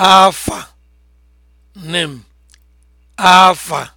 afa nem afa